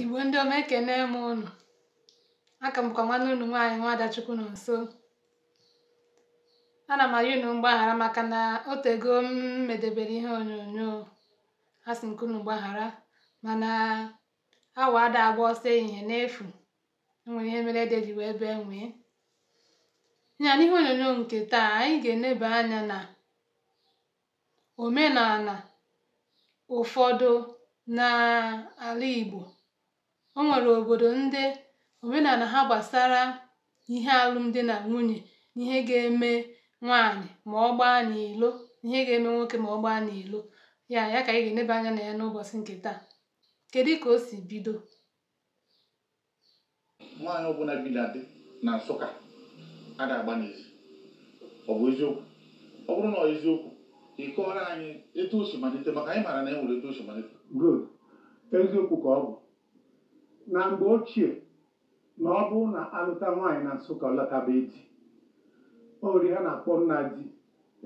Igbo ndị ọma ekene m ụnụ Aka m bụkwa nwanne unu nwaanyị Nwaada Chukwunonso. Ana m arịọ unu mgbaghara maka na otego m medebere ihe onyonyo a sị m unu gbaghara mana awa ada agba ọsọ ehihie n'efu enwere nwere ihe mere ede ji ebe nwee. Ya n'ihe onyonyo nke taa anyị ga-eneba anya na omenala ụfọdụ n'ala Igbo o nwere obodo ndị omenala ha gbasara ihe alụm na nwunye ihe ga-eme nwaanyị̀ mà ọ gbaa n'ìlo ihe ga-eme nwoke ma ọ gbaa n'ilo ya ya ka anyị ga-eneba anya nà ya n'ụbọ̀chị ǹkè taa kedu ka o si bido nwaanyị ọbụla bi na di na Nsụka a ga-agba n'ezi ọ bụ eziokwu ọ bụrụ na ọ eziokwu ị kọọrọ anyị etu o si malite maka anyị maara na e nwere etu o si malite eziokwu ka ọ bụ na mgbe ochie na ọ bụ na alụta nwaanyị na Nsụka ọ lọtabeghị di ori na-akpọ nna di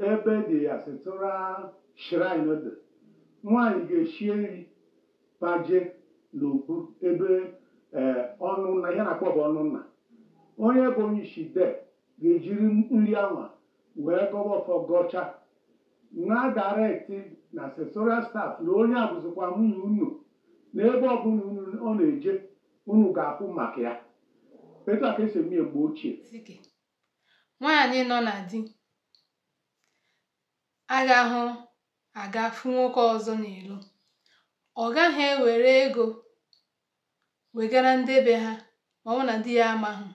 ebe dị ya sitụra shrine dị nwaanyị ga-eshie nri baje n'okpu ebe e, ọnụnna nna ihe na-akpọ bụ ọnụnna onye bụ onye isi de ga-ejiri nri anwa wee gọwa ọfọ gọcha na dareti na sesora staf na onye abụzikwa nwunye unu na ebe ọbụla ọ na-eje unu ga-ahụ maka ya etu a ka esi eme mgbe ochie nwaanyị nọ na di agahụ aga fụ nwoke ọzọ n'ilo ọ gaghị ewere ego wegara ndị be ha ma ọ na di ya amaghị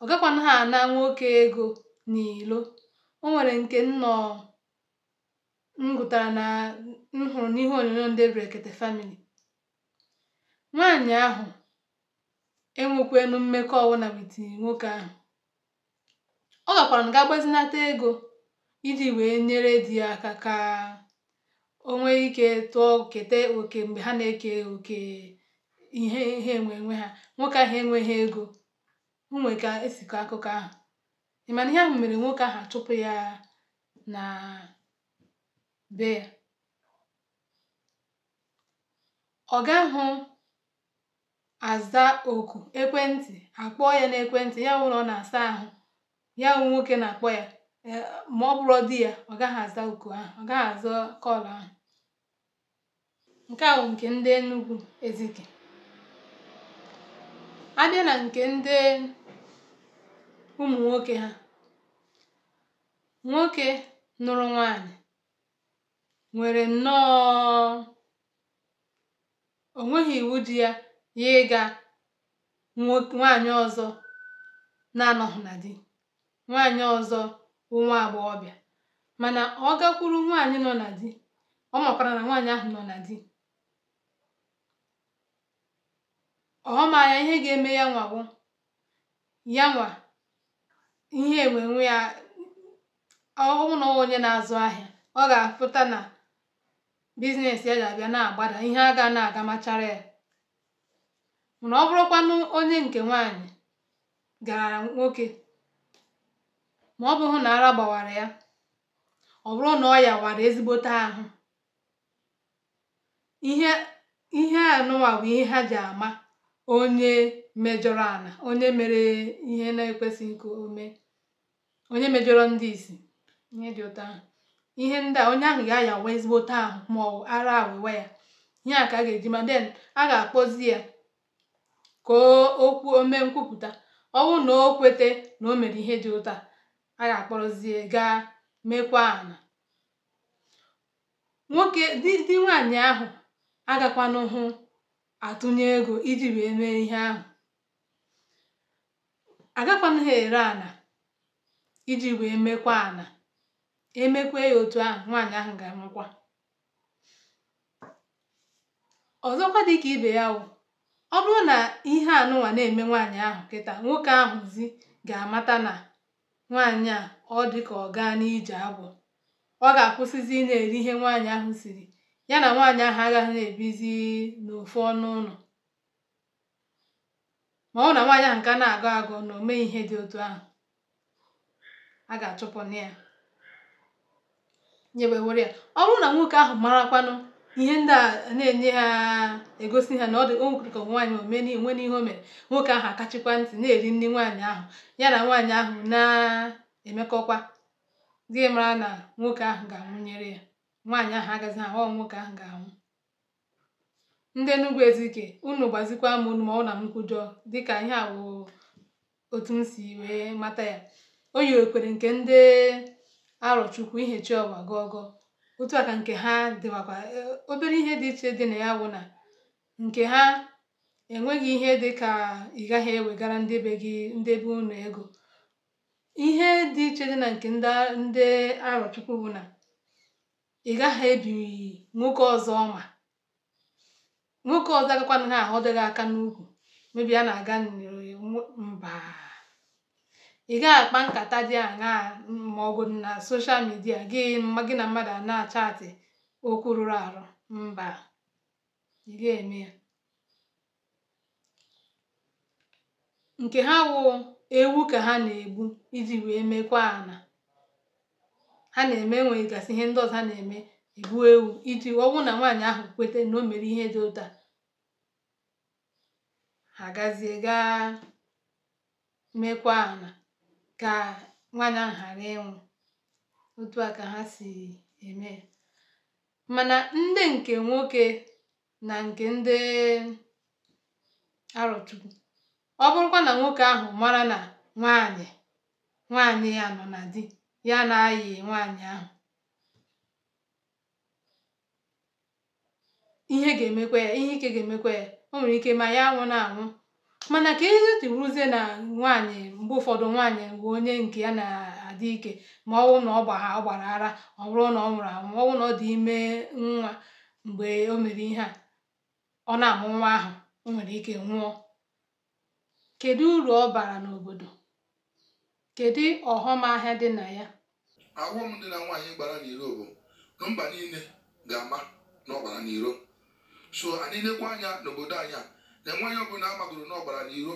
ọ gakwana ha ana nwoke ego n'ilo o nwere nke nnọọ m gụtara na m hụrụ n'ihe onyonyo ndị brekete famili nwaanyị ahụ enwekwenu mmekọ ọwụna with nwoke ahụ. Ọ gakwara ga gbazinata ego iji wee nyere di ya aka ka o ike tụọ keta oke mgbe ha na-eke oke ihe ihe nwe ha. Nwoke ahụ enweghị ego. Onwe ka esikọ akụkọ ahụ. Ị mana ihe ahụ mere nwoke ahụ achụpụ ya na be ya. ọ ahụ aza oku ekwentị akpọọ ya n'ekwentị ya ụlọ na ọ na-asa ahụ ya nwoke na-akpọ ya e, ma ọ bụrụ di ya ọ gaghị aza oku ahụ ọ gaghị aza kọlụ ahụ nke a nke ndị Enugu Ezike a na nke ndị ụmụ nwoke ha nwoke nụrụ nwanyị nwere nnọọ onweghị iwu ji ya ya ịga nwaanyị ọzọ na-anọghị na di nwaanyị ọzọ bụ nwa agbọghọbịa mana ọ gakwuru nwaanyị nọ na di ọ makwara na nwaanyị ahụ nọ na di ọ ma ya ihe ga-eme ya nwa ya nwa ihe enwenwe ya ọhụụ na onye na-azụ ahịa ọ ga-apụta na biznes ya ga-abịa na-agbada ihe a na-aga machara ya mana ọ bụrụkwanụ onye nke nwaanyị gara nwoke ma ọ bụghụ na ara gbawara ya ọ bụrụ na ọ ya wara ezigbote ahụ ihe ihe anụwa bụ ihe ha ji ama onye mejọrọ ana onye mere ihe na ekwesị nke ome onye mejọrọ ndị isi ihe dị ụtọ ahụ ihe ndị a onye ahụ ga-ayawa ezigbote ahụ ma ọ ara awụwa ya ihe a ka a ga-eji ma den a ga-akpọzi ya ka o kwuo o nkwupụta ọ na o kweta na o mere ihe dị ụta a ga-akpọrọzie gaa mekwa ana nwoke di nwanyị nwaanyị ahụ agakwanụ hụ atụnye ego iji wee mee ihe ahụ agakwana ha ere ana iji wee mekwa ana emekwe ya otu ahụ nwaanyị ahụ ga-anwụkwa ọzọkwa ka ibe ya wụ ọ bụrụ na ihe anụwa na-eme nwaanyị ahụ kịta nwoke ahụzi ga-amata na nwaanyị a ọ dịka ọ gaa n'ije agbọ ọ ga-akwụsịzi ị na-eri ihe nwaanyị ahụ siri ya na nwaanyị ahụ agaghị na-ebizi n'ofu ọnụ ụlọ ma ọ na nwaanyị ahụ ka na-agụ agụ na ome ihe dị otu ahụ a ga-achụpụ ya were ya ọ bụrụ na nwoke ahụ marakwanụ ihe ndị a na-enye ha egosi ha na ọ dị o nwekwere ka nwaanyị omeni nwe n'ihe o mere nwoke ahụ akachikwa ntị na-eri nri nwaanyị ahụ ya na nwaanyị ahụ na-emekọkwa gị mara na nwoke ahụ ga-anwụnyere ya nwaanyị ahụ agaghị ahụ ọ nwoke ahụ ga-anwụ ndị Enugu Ezike unu gbazikwa m unu ma ọ na m kwujọ dịka ihe a bụ otu m si wee mata ya o yi okwere nke ndị Arochukwu ihechi ọwa gọgọ otu aka nke ha dịwakwa e, obere ihe dị iche dị na ya wụ na nke ha enweghị ihe dị ka ị gaghị ewegara ndị be gị ndị be ego ihe dị iche dị na nke ndị arọchukwu bụ na ị gaghị ebi nwoke ọzọ ma nwoke ọzọ agakwana ha ahọdụ dịghị aka n'ukwu mebi a na-aga mba Ị gaghị akpa nkata dị ma màọ̀gụ̀dụ̀ na soshal midia gị gị na mmadụ a na achatị okwu rụrụ arụ mba ị ga-eme ya nke ha wụ ewu ka ha na-egbu iji wee mekwaa ana ha na-eme gasị ihe ndị ọzọ ha na-eme egbuo ewu iji ọ bụrụ na nwaanyị ahụ kweta na o mere ihe dị ụta ha gazie gaa mekwaa ana ka nwaànyị ahụ ghara ịnwụ otu a ka ha si eme mana ndị nke nwoke na nke ndị arọ̀chukwu ọ bụrụkwa na nwoke ahụ mara na nwaanyị nwaànyị ya nọ na di ya na-ayị nwanyị ahụ ihe ga-emekwa ya ihe ike ga-emekwa ya o nwere ike ma ya na anwụ Mana ka isi ruzie na nwaanyị mgbe ụfọdụ nwaanyị bụ onye nke ya na-adị ike ma ọ na ọ gbaa ọ gbara ara ọ bụrụ na ọ nwụrụ anwụ ma ọ na ọ dị ime nwa mgbe o mere ihe a ọ na-amụ nwa ahụ o nwere ike nwụọ. Kedu uru ọ bara n'obodo? Kedu ọghọm ahịa dị na ya? Aghọm dị na nwaanyị gbara n'iro bụ na mba niile ga-ama na ọ gbara n'iro. So anyị lekwa anya n'obodo anyị a na enweghị ọbụla amagoro n'ọgbara n'iro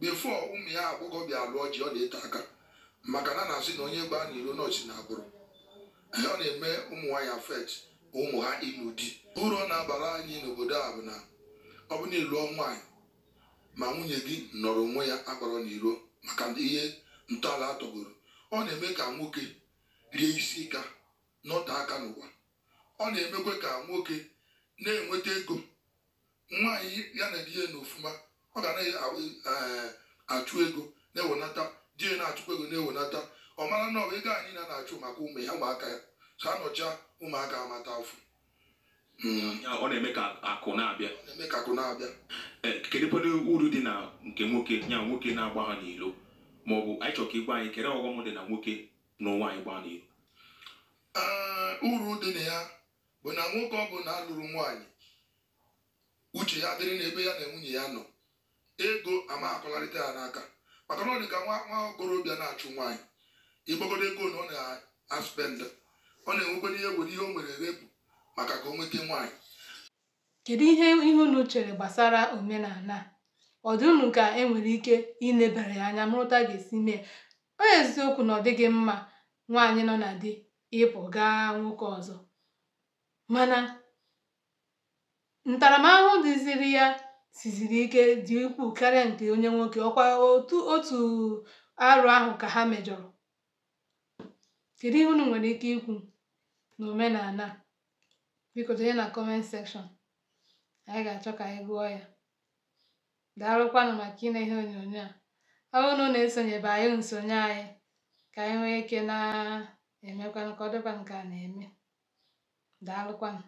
befo ụmụ ya agbọghọ bịa lụọ ji ọ na-eto aka maka na na-asị na onye gbaa n'iro nọọsụ na agbụrụ ọ na-eme ụmụ nwanyị afet ụmụ ha ịlụ di ụrọ na-abara anyị n'obodo a bụ na ọ bụ na elu nwaanyị ma nwunye gị nọrọ onwe ya agbara n'iro maka ihe ntọala atọgoro ọ na-eme ka nwoke rie isi ka nọte aka n'ụwa ọ na-emekwa ka nwoke na-enweta ego nwa anyị ya na di ya n'ofuma ọ ga na-achụ eh, ego na-ewenata di ya na-achụkwa ego na-ewenata ọ mara na ọ ego anyị na achụ maka ụmụ ya ụmụaka ya so anọcha ụmụaka amata hmm. afọ ọ na-eme ka akụ na-abịa na-eme ka akụ na-abịa eh, kedụkwadụ uru dị na nke nwoke ya nwoke na-agba ha n'ilo ma ọ bụ anyị chọrọ ka igwe anyị kere ọghọm dị na nwoke na ụwa anyị gbaa n'ilo eh, uru dị na ya bụ na nwoke ọ bụla alụrụ nwaanyị uche ya dịrị n'ebe ya na nwunye ya nọ ego ama ya n'aka maka na ọ dị ka nwa okorobịa na-achụ nwaanyị ịgbagodo ego na ọ na-aspenda ọ na-enwekwa ihe were ihe o nwere erepụ maka ka o nweta nwaanyị kedu ihe ihe unu chere gbasara omenala ọ dị unu ka e nwere ike inebara ya anya mụrụta ga-esi mee onye eziokwu na ọ dịghị mma nwaanyị nọ na di ịpụ gaa nwoke ọzọ mana ntaramahụhụ dịziri ya siziri ike dị ukwuu karịa nke onye nwoke ọkwa otu otu arụ ahụ ka ha mejọrọ kedu ihe unu nwere ike ikwu n'omenala biko tinye na kọment sekshọn anyị ga-achọ ka anyị gụọ ya daalụkwanụ maka ịna ihe onyonyo a ọ na na-esonyebe anyị nsonye anyị ka anyị nwee ike na-emekwanụ ka ọ dịkwa nke a na-eme daalụkwanụ